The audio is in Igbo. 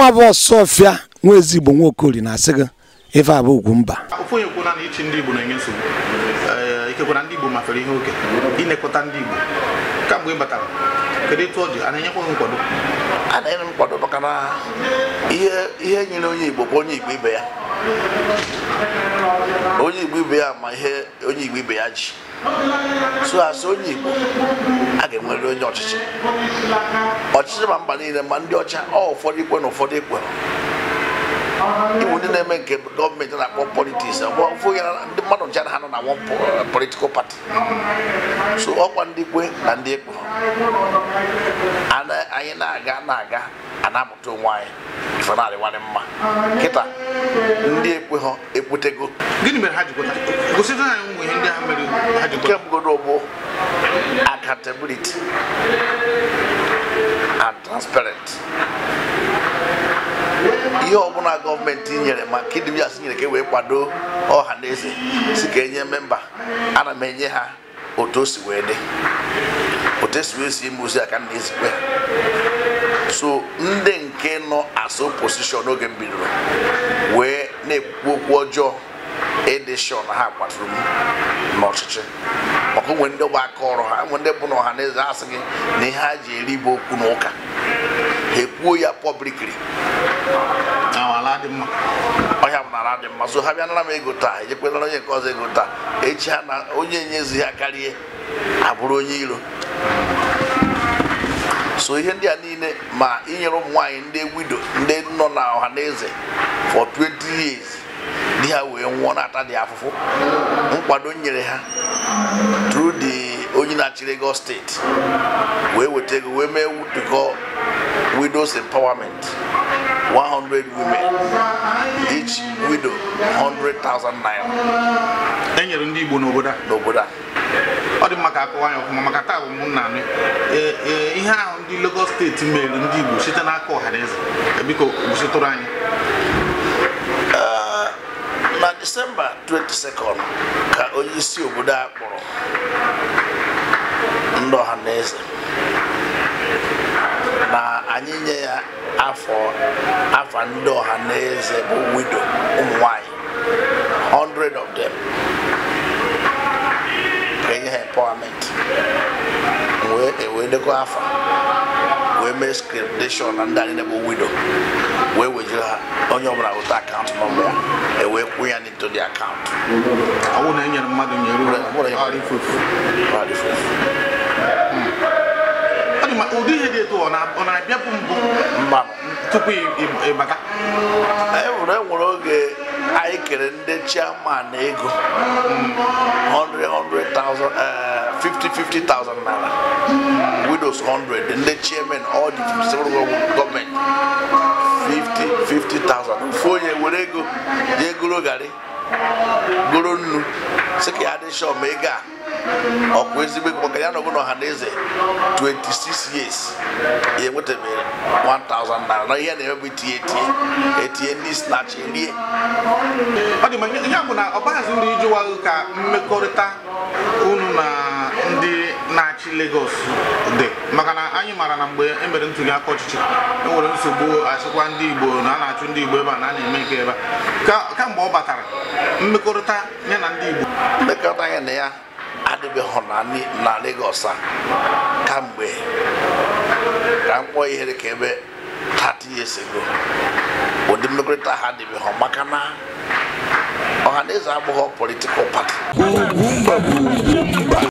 nwa bụ ọfịa nwa igbo nwa okori na-asị gị ife abụ ugwu mba ofu onye na ichi ndị ibu na-enye nsogbu ikekwana ndị Igbo ihe oke ndị Igbo kamgbe ịbata kedu ịtụ ọ a na-enyekwa maka na ihe nyere onye Igbo bụ onye Igbo ibe ya onye Igbo ibe ya ma ihe onye Igbo ibe ya ji so asị onye Igbo a ga onye ọchịchị ọchịchị ma mba niile ma ndị ọcha ọ ụfọdụ ikwe na ụfọdụ ikwe Iwu ndị na-eme nke gọọmenti na-akpọ politiks ndị mmadụ ncha na ha na wọn uh, politikal pati so ọkwa ndị kwe na ndị ekwe anyị na-aga na-aga a amụta onwe anyị ife na-adịwanye mma nkịta ndị ekweghọ ekwetego gịnị mere ha ji kemgodo bụ accountability and transparent ihe ọbụla gọọmenti nyere ma nke ndị asị nyere ka e wee kwado ọha na eze si ka enye memba ana m enye ha otu o si wee dị otu esi wee si ime ozi a ka na-ezikwe so ndị nke nọ as posishọn oge m bidoro wee na-ekwu okwu ọjọọ edishọn ha kwaturu m n'ọchịchị maka nwee ndị bụ aka ọrụ ha nwe ndị bụ na ọha na eze asị gị na ihe ha ji eri bụ okwu n'ụka ha ekwuo ya pọblikri ọhịa m nara dị mma so ha bịa nara m ego taa ejekwenara onye nke ọzọ ego taa echi ha na onye nyezi ha karịa abụrụ onye iro so ihe ndị a niile ma inyere ụmụ nwaanyị ndị wido ndị nọ na ọha na eze for 20 years di ha wee nwụọ na-ata dị afụfụ nkwado nyere ha tru di onye na-achị steeti wee weta ego wee mee wutukọ widows empowerment 100 women each widow 100,000 naira e nyere ndị Igbo n'obodo a maka akọwa ya ọfụma maka taa bụ m nna ihe ahụ ndị Lagos steeti mere ndị Igbo site n'aka ọhaneze e biko gositụrụ anyị na Disemba 22 ka onye isi obodo a kpọrọ ndị ọhaneze na anyị nye ya afọ afa ndị ọhaneze bụ widow ụmụ nwanyị 100 of them nye ha empowerment wee dekọ e afa wee mee scriptation na ndị anyị na-ebo wido wee wejuru ha onye ọbụla weta akaụntụ nọmba ya ewee kwụ ya n'ito dị akaụntụ e hmm. ụdị ihe dị etu ọ na-abịa bụ mbụ tupu ịbata enwere e oge anyị kere ndị chairman ego hmm. 50,000 naira. Widows 100, ndị chairman all the government 50 50,000. onye were ego jee nnu sị ka ya ma ego a ezigbo ego maka ya na ọbụla ọha na eze 26 years enwetabeghị 1000 naira na ihe na-eme bụ ndị snach erie ọ dị na ka mmekọrịta ọchịchị dị maka na anyị maara na mgbe e mere ntuli aka ọchịchị e nwere nsogbu achịkwa ndị Igbo na a na-achụ ndị Igbo ebe a na a na-eme nke ebe a kamgbe ọ batara mmekọrịta ya na ndị Igbo mmekọrịta ya na ya adịbeghị na Lagos a kamgbe ka mkpọ ihere ka ebe 30 years ago ụdị mmekọrịta ha adịbeghị maka na ọha na eze abụghị politikal pati